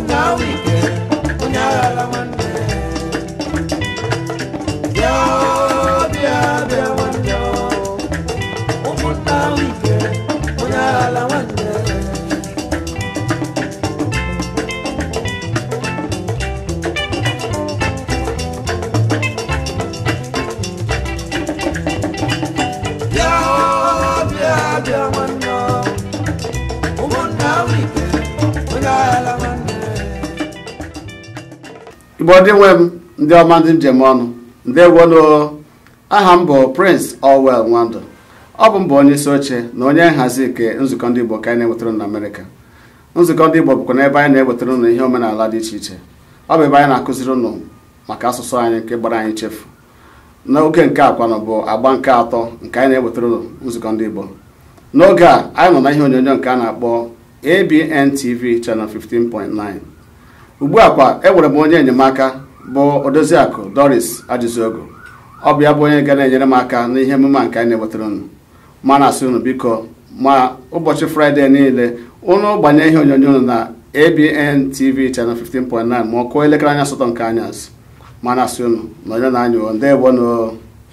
now we igbo ndị nwe m ndị ọma ndị njem ọnụ ndewonu aha m bụ prince Orwell Nwandụ ọ bụ mbụ onye isi oche na onye nhazi nke nzukọ ndị igbo ka anyị na-ewetara na nzukọ ndị igbo bụkwa n'ebe anyị na-ewetara ụnụ ihe omenala dị iche iche ọ bụ ebe anyị na-akụziri ụnụ maka asụsụ anyị nke gbara anyị chefu n'oge nke akwanụ bụ agba nke atọ nke anyị na enwetara ụnụ nzukọ ndị igbo n'oge a anyị nọ na ihe onyonyo nke a na-akpọ ABN TV channel 15.9 ugbu a kwa enwere m onye enyemaka bụ odoziakụ doris ajụziogo ọ bụ ya bụ onye ga na-enyere m aka n'ihe emume nke anyị na-ewetara unu ma na-asị unu biko ma ụbọchị fraịde niile ụnụ gbanye ihe onyonyo unu na abntv tv channel 15.9 ma ọ kụọ elekere anya asatọ nke anya ma na-asị na onye na-anyụ ndị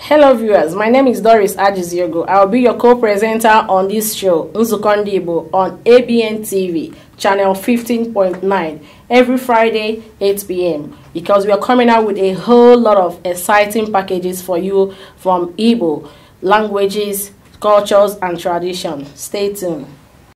Hello viewers, my name is Doris Ajiziogo. I'll be your co-presenter on this show, Nzukondibo, on ABN TV, channel 15.9, every Friday, 8 p.m. Because we are coming out with a whole lot of exciting packages for you from Igbo, languages, cultures, and tradition. Stay tuned.